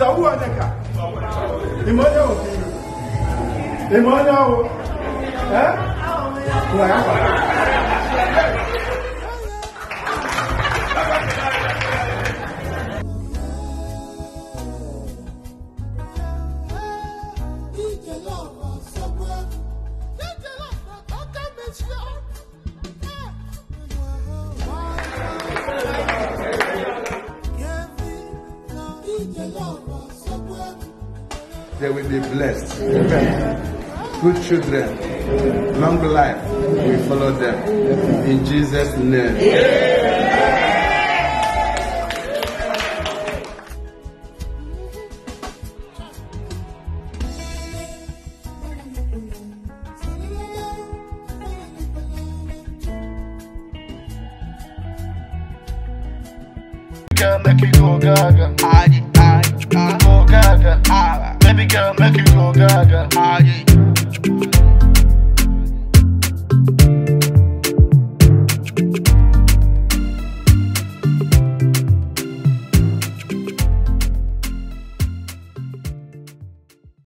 Isaúwa nìka ìmọ̀nyá o ìmọ̀nyá o ẹ́ wọ̀ ẹ́. They will be blessed. Amen. Good children, long life We follow them. In Jesus' name. Amen. Make gaga. Baby girl, make you go gaga. Ah, yeah.